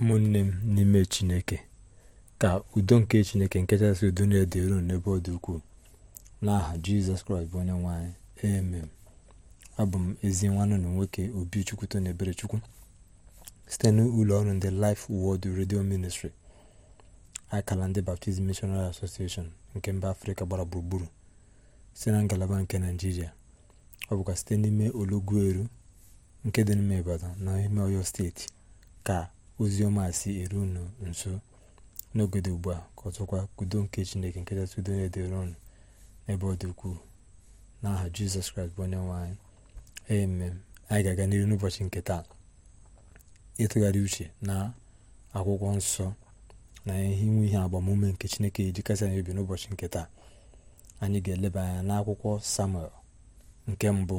ụmụnne m n'ime chineke ka udo nke chineke nke chasị udo na-ede n'ebe ọ dị ukwuu n'aha jizọs kraịst bụ onye nwanyị amen abụ m ezi nwanne na nwoke obi chukwuto na ebere chukwu site n'ụlọ ọrụ ndị Life Word redio Ministry akala ndị Baptist Missionary Association nke mba afrịka gbara gburugburu site na ngalaba nke naijiria ọ bụkwa site n'ime olugbu eru nke dị n'ime Ibadan na ime Ọyọ steeti ka ozi ọma si eru unu nso n'ogodo ugbu a ka ọzọkwa ka nke chineke nke kachasị udo na dịrị ụnụ n'ebe ọ dị ukwuu n'aha jizọs kraịst bụ onye nwe anyị amen anyị ga-aga n'ihu n'ụbọchị nke taa ịtụgharị uche na akwụkwọ nsọ na ihe inwe ihe agbamume nke chineke ji kasị anyị obi n'ụbọchị nke taa anyị ga-eleba anya n'akwụkwọ samuel nke mbụ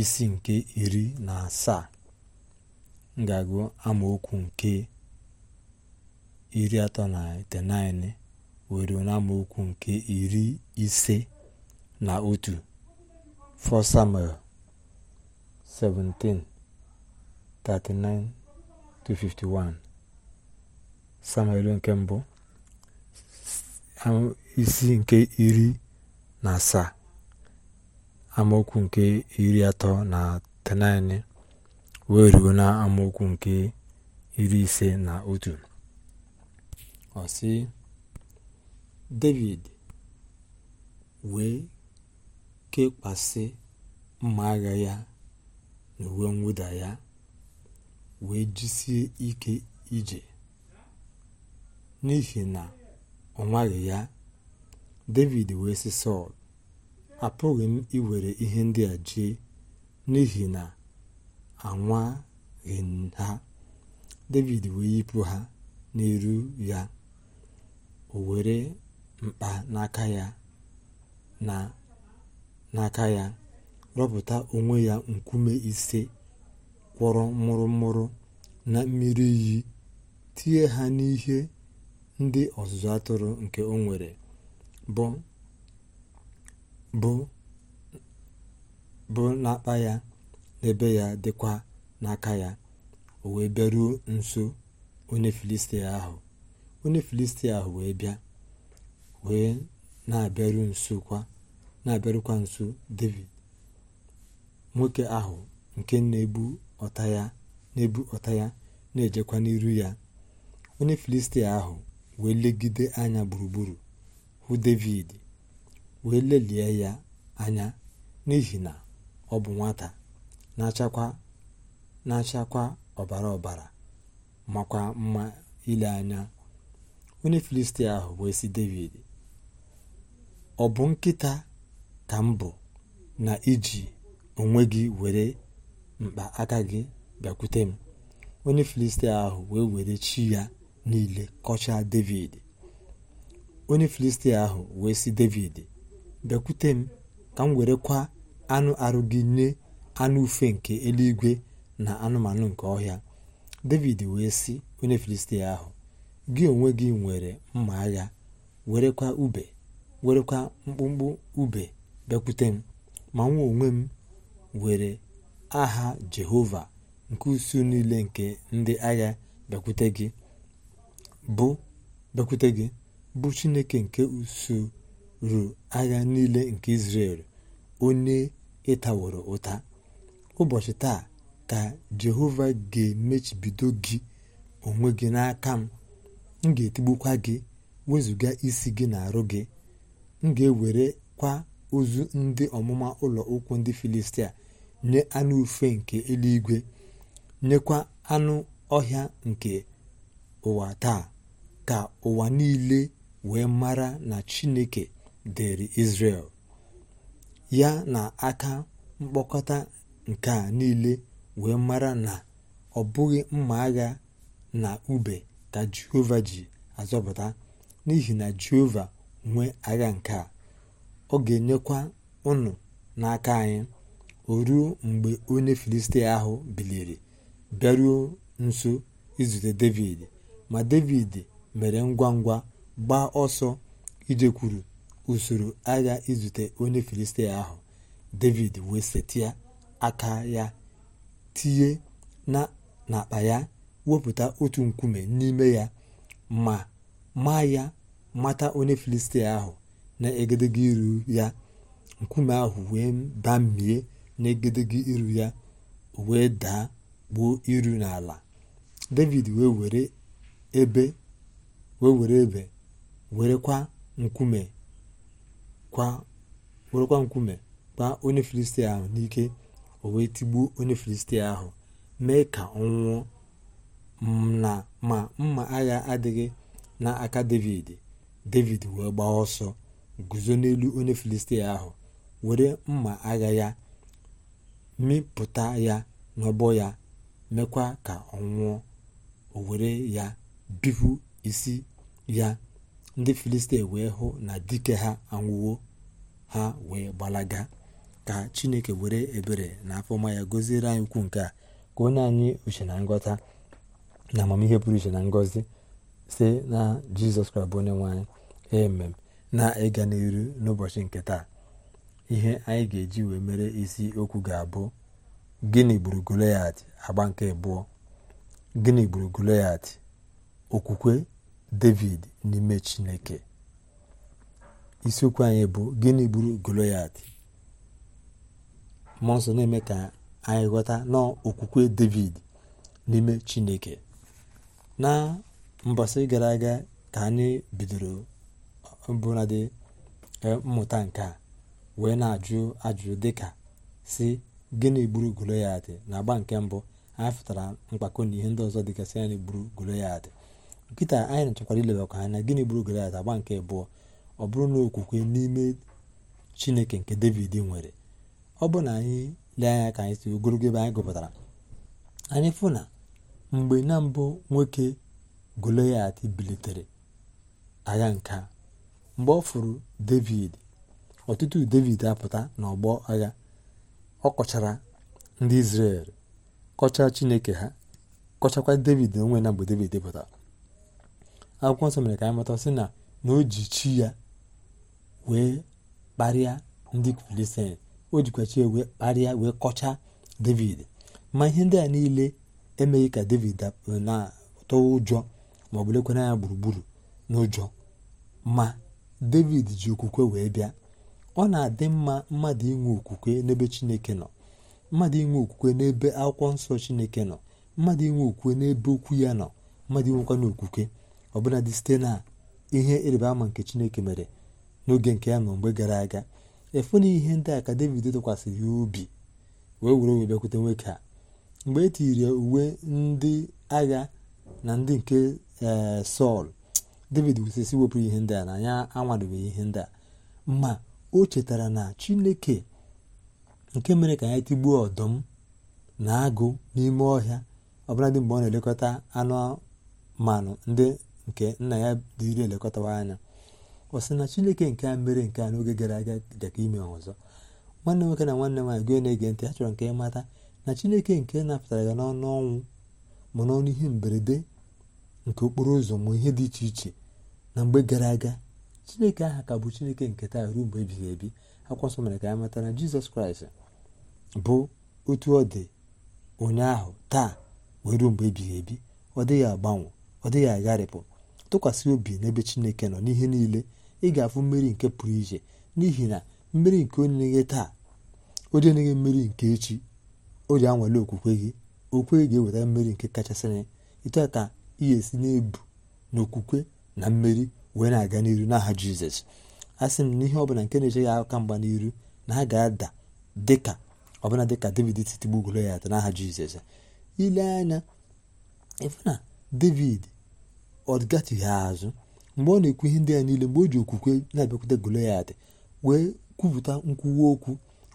isi nke iri na asaa ga-agụ amaokwu nke iri atọ na 19 wee n'amaokwu nke iri ise na otu 1 Samuel 17:39-51 Samuel nke mbụ isi nke iri na asaa amaokwu nke iri atọ na 39 wee ruo na amaokwu nke iri ise na otu ọ david wee kekwasị mma agha ya na uwe mwụda ya wee jisie ike ije n'ihi na ọ nwaghị ya david wee si sọl apụghị m iwere ihe ndị a jee n'ihi na anwaghị ha david wee yipụ ha n'iru ya o were mkpa n'aka ya na ya rọpụta onwe ya nkume ise kwọrọ mụrụmụrụ na mmiri iyi tie ha n'ihe ndị ọzụzụ atụrụ nke o nwere bụ n'akpa ya n'ebe ya dịkwa n'aka ya o wee bịaruo nso onye filistia ahụ onye filistia ahụ wee bịa wee na-abịaru nso kwa na-abịarukwa nso david nwoke ahụ nke na-ebu ọta ya na-ebu ọta ya na-ejekwa n'iru ya onye filistia ahụ wee legide anya gburugburu hụ david wee lelie ya anya n'ihi na ọ bụ nwata na-achakwa ọbara ọbara makwa mma ile anya onye filistia ahụ wee sị david ọ bụ nkịta ka m bụ na iji onwe gị were mkpa aka gị bịakwute m onye filistia ahụ wee were chi ya niile kọchaa david onye filistia ahụ wee sị david bịakwute m ka m werekwa anụ arụ gị nye anụ ufe nke eluigwe na anụmanụ nke ọhịa david wee sị onye filistia ahụ gị onwe gị nwere mma agha werekwa ube werekwa mkpụmkpụ ube bịakwute m ma nwa onwe m were aha jehova nke usu niile nke ndị agha bekwute gị bụ bekwute gị bụ chineke nke usuu agha niile nke izrel onye ịtaworo ụta ụbọchị taa ka jehova ga-emechibido gị onwe gị n'aka m m ga-etigbukwa gị wezụga isi gị na-arụ gị m ga-ewerekwa ozu ndị ọmụma ụlọ ụkwụ ndị filistia nye anụ ufe nke eluigwe nyekwa anụ ọhịa nke ụwa taa ka ụwa niile wee mara na chineke dịrị israel ya na aka mkpokọta nke a niile wee mara na ọ bụghị mma agha na ube ka jehova ji azọpụta n'ihi na jehova nwee agha nke a ọ ga-enyekwa ụnụ n'aka anyị o ruo mgbe onye filistia ahụ biliri bịaruo nso izute david ma david mere ngwa ngwa gbaa ọsọ ijekwuru usoro agha izute onye filistia ahụ david wee setia. aka ya tinye n'akpa ya wepụta otu nkume n'ime ya ma ma ya mata onye filistia ahụ na-egedege iru ya nkume ahụ wee bamie na-egedege iru ya wee daa gbuo iru n'ala david wee were ebe wee were ebe werekwa nkume kwa werekwa nkume gbaa onye filistia ahụ n'ike o wee tigbuo onye filistia ahụ mee ka ọ nwụọ ma mma agha adịghị n'aka david david wee gbaa ọsọ guzo n'elu onye filistia ahụ were mma agha ya mịpụta ya n'ọbọ ya mekwa ka ọ nwụọ o were ya bipụ isi ya ndị filistia wee hụ na dike ha anwụwo ha wee gbalaga ka chineke were ebere na afọma ya goziere anyị ukwu nke a ka onye anyị uche na ngọta na amamihe pụrụ iche na ngọzi si na jizọs kraịst bụ onye nwanyị emem na ịga n'iru n'ụbọchị nke taa ihe anyị ga-eji wee mere isi okwu ga-abụ gịnị gburu goliat agba nke abụọ gịnị gburu goliat okwukwe david n'ime chineke isiokwu anyị bụ gịnị gburu goliat mmụọ nsọ na-eme ka anyị ghọta na okwukwe david n'ime chineke na mbọsị gara aga ka anyị bidoro mbụnadị e, mmụta nke a wee na-ajụ ajụjụ dịka si gịnị gburu goloyat na agba nke mbụ anyị fụtara mkpakọ na ihe ndị ọzọ dịgasị anyị gburu goloyat nkịta anyị na-achọkwara ilebakwa anya gịnị gburu goloyat agba nke abụọ ọ bụrụ na okwukwe n'ime chineke nke david nwere ọ bụ na anyị lee anya ka anyị si ogologo ebe anyị gụpụtara anyị fụ na mgbe na mbụ nwoke Goloyat bilitere agha nke a mgbe ọ fụrụ David ọtụtụ David apụta n'ọgbọ agha ọ kọchara ndị Izrel kọchaa Chineke ha kọchakwa David onwe na mgbe David pụtara akwụkwọ nsọ mere ka anyị mata sị na na o ji chi ya wee kparịa ndị Filistin o jikwachi wee kparịa wee kọchaa david ma ihe ndị a niile emeghị ka david na-atọ ụjọ ma ọ bụlekwa lekwana ya gburugburu n'ụjọ ma david ji okwukwe wee bịa ọ na-adị mma mmadụ inwe okwukwe n'ebe chineke nọ mmadụ inwe okwukwe n'ebe akwụkwọ nsọ chineke nọ mmadụ inwe okwukwe n'ebe okwu ya nọ mmadụ inwekwana okwukwe ọbụladị site na ihe ịrịba ama nke chineke mere n'oge nke ya nọ mgbe gara aga efu na ihe ndị a ka david tụkwasịrị ya ubi wee were wee bịakwute nwoke a mgbe e tiri uwe ndị agha na ndị nke eh, sọl david wusesi wepụrụ ihe ndị a na anya ihe ndị a ma o chetara na chineke nke mere ka ya tigbuo ọdụm na agụ n'ime ọhịa ọbụladị mgbe ọ na-elekọta anụmanụ ndị nke nna ya dịrị elekọtawa anya ọ sị na chineke nke a mere nke a n'oge gara aga dị ime ọzọ nwanne nwoke na nwanne nwaanyị gị na-ege ntị ha chọrọ nke ịmata na chineke nke napụtara ya n'ọnụ ọnwụ ma n'ọnụ ihe mberede nke okporo ụzọ ma ihe dị iche iche na mgbe gara aga chineke aha ka bụ chineke nke taa ruo mgbe ebighị ebi akwụkwọ nsọ mere ka anyị mata na jizọs kraịst bụ otu ọ dị ụnyaahụ taa wee ruo mgbe ebighị ebi ọ dịghị agbanwe ọ dịghị agharịpụ tụkwasị obi n'ebe chineke nọ n'ihe niile ị ga-afụ mmeri nke pụrụ iche n'ihi na mmeri nke onye taa onye enyeghị mmeri nke echi o ji anwale okwukwe gị okwe ga-eweta mmeri nke kachasịrị etu a ka ị esi na-ebu n'okwukwe na mmeri wee na-aga n'iru n'aha jizọs a sị m na ihe ọbụla nke na-eche ya aka mgba n'iru na ha ga-ada dịka ọbụla dịka david si ya ata n'aha jizọs ile anya ịfụ na david ọ gatụghị azụ mgbe ọ na-ekwu ihe ndị ya niile mgbe o ji okwukwe na-abịakwute Goliat wee kwupụta nkwuwa okwu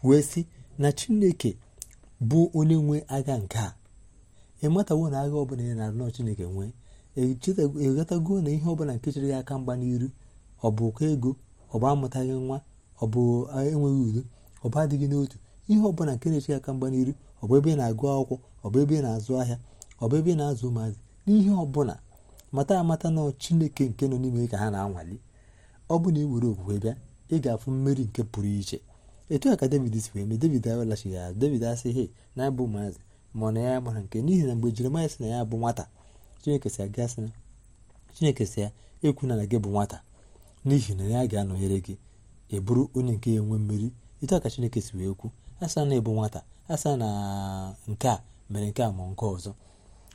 wee sị na Chineke bụ onye nwe agha nke a ịmatawo na agha ọbụla ya na anọ Chineke nwee echetago e na ihe ọbụla nke chere ya aka mgba n'iru ọ bụ ụkọ ego ọ bụ amụtaghị nwa ọ bụ enweghị udo ọ bụ adịghị n'otu ihe ọbụla nke na ya aka mgba n'iru ọ bụ ebe ị na-agụ akwụkwọ ọ bụ ebe ị na-azụ ahịa ọ bụ ebe ị na-azụ ụmụazị n'ihe ọbụla mata amata na chineke nke nọ n'ime ka ha na-anwali ọ bụ na iwere okwukwe bịa ị ga-afụ mmeri nke pụrụ iche etu a ka david si wee mee david awelachigha azụ david asị he na abụ maazị ma na ya gbara nke n'ihi na mgbe jeremaya sị na ya bụ nwata chineke si aga sị na chineke si ya ekwuna na gị bụ nwata n'ihi na ya ga-anọnyere gị ịbụrụ onye nke ya enwe mmeri etu a ka chineke si wee kwu asa na ịbụ nwata asa na nke a mere nke a ma nke ọzọ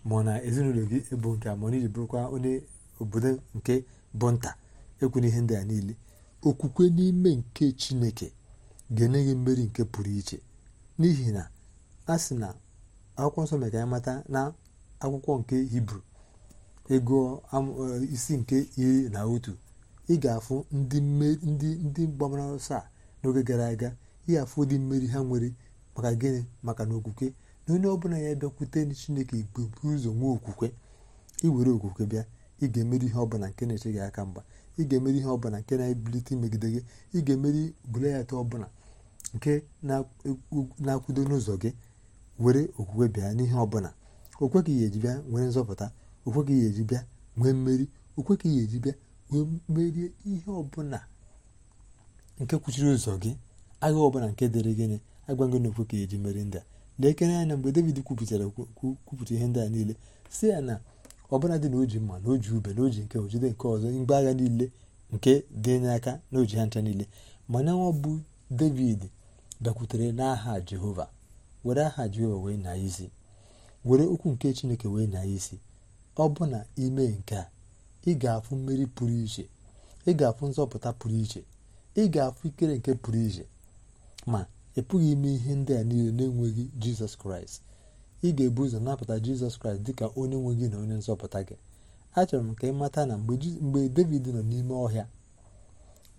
ma ọ na ezinụlọ gị bụ nke a ma ọ na iji bụrụkwa onye obodo nke bụ nta ekwu ihe ndị a niile okwukwe n'ime nke chineke ga-enye gị mmeri nke pụrụ iche n'ihi na a sị na akwụkwọ nsọ mere ka anyị mata na akwụkwọ nke hibru ego e, isi nke iri na otu ị ga-afụ ndị mgbamara ọsọ a n'oge gara aga ị ga-afụ ụdị mmeri ha nwere maka gịnị maka na okwukwe na onye ọbụla ya bịakwute chineke ibubu ụzọ nwee okwukwe iwere okwukwe bịa ị ga-emeri ihe ọbụla nke na-eche gị aka mgba ị ga-emeri ihe ọbụla nke na-ebilite imegide gị ị ga-emeri bụlayata ọbụla nke na-akwudo n'ụzọ gị were okwukwe bịa n'ihe ọbụla okwe ka ihe eji bịa nwere nzọpụta okwe ka ihe eji bịa nwee mmeri okwe ka ihe eji bịa wee merie ihe ọbụla nke kwuchiri ụzọ gị agha ọbụla nke dịrị gịnị agwa gị na okwe ka eji meri ndị a na-ekere anya mgbe david kwupụtara kwupụta ihe ndị a niile si ya na ọbụla dị na oji mma na oji ube na oji nke ojide nke ọzọ mgbe agha niile nke dị n'aka n'oji ha ncha niile mana nwa bụ david bịakwutere n'aha jehova were aha jehova wee na isi were okwu nke chineke wee na isi ọ bụ na nke a ị ga-afụ mmeri pụrụ iche ị ga-afụ nzọpụta pụrụ iche ị ga-afụ ikere nke pụrụ iche ma ị pụghị ime ihe ndị a niile na-enweghị jizọs kraịst ị ga-ebu ụzọ napụta jizọs kraịst ka onye nwe gị na onye nzọpụta gị achọrọ m ka ị mata na mgbe david nọ n'ime ọhịa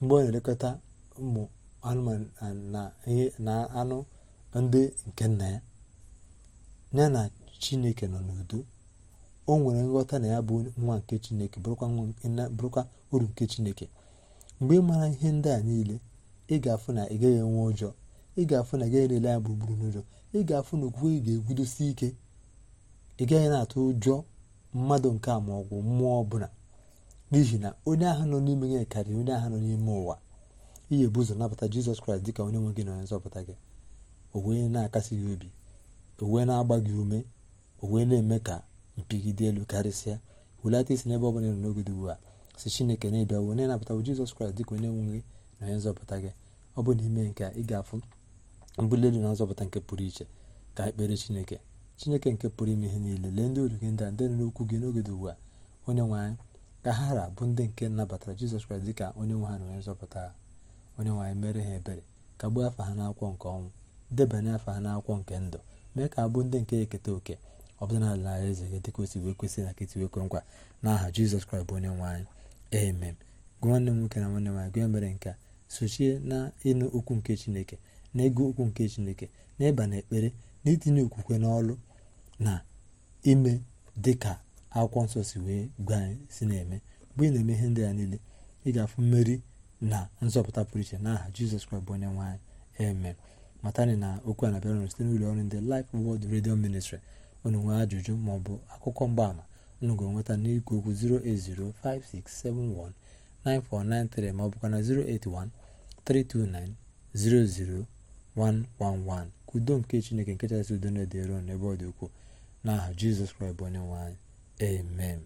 mgbe ọ na-elekọta ụmụ anụmanụ na anụ ndị nke nna ya ya na chineke nọ n'udo o nwere nghọta na ya bụ nwa nke chineke bụrụkwa uru nke chineke mgbe ị mara ihe ndị a niile ị ga-afụ na ị gaghị enwe ụjọọ ị ga-afụ na gaghị na-ele ya gburugburu n'ụjọ ị ga-afụ na okwukwe ị ga-egudosi ike ị gaghị na-atụ ụjọ mmadụ nke a ma ọ bụ mmụọ ọbụla n'ihi na onye ahụ nọ n'ime gị karịrị onye ahụ nọ n'ime ụwa ihe bụ ụzọ nabata jizọs kraịst dịka onye nwe gị na onye nzọpụta gị o wee na-akasi gị obi o wee na-agba gị ume o wee na-eme ka dị elu karịsịa wulata isi n'ebe ọ bụla nọ n'oge dị ugbu a si chineke na-ebiawo onye nabatawo jizọs kraịst dịka onye nwe gị na onye nzọpụta gị ọ bụ n'ime nke ị ga-afụ mbuli na nzọpụta nke pụrụ iche ka ekpere chineke chineke nke pụrụ ime ihe niile lee ndị olu gị ndị a ndị nọ n'okwu gị n'oge dị ugbu a onye nwe anyị ka ha ra bụ ndị nke nabatara jizọs kraịst dịka onye nwe ha na onye nzọpụta onye nwaanyị mere ha ebere ka gbuo afa ha n'akwụkwọ nke ọnwụ debanye afa ha n'akwụkwọ nke ndụ mee ka abụ ndị nke eketa oke ọ bụla n'ala eze gị dịka o wee kwesị na nkịtị wee nkwa n'aha jizọs kraịst bụ onye nwe amen gwa nwanne m nwoke na nwanne nwaanyị gwa mere nke a sochie na ịnụ okwu nke chineke na ịgụ okwu nke chineke na ịba na ekpere na itinye okwukwe n'ọlụ na ime dị ka akwụkwọ nsọ si wee gwa anyị si na-eme mgbe ị na-eme ihe ndị a niile ị ga-afụ mmeri na nzọpụta pụrụ iche n'aha jizọs kraịst bụ onye nwaanyị amen matani na okwu a na-abịara site n'ụlọ ọrụ ndị Life Word Radio Ministry unu nwee ajụjụ maọbụ akụkọ mgbaama unu ga-enweta n'ikwu okwu 08056719493 maọbụkwa na 081 329 00 111 ka udo nke chineke nke chasị udo na-edere unu ebe ọ dị ukwuu n'aha jizọs kraịst bụ onye nwe anyị amen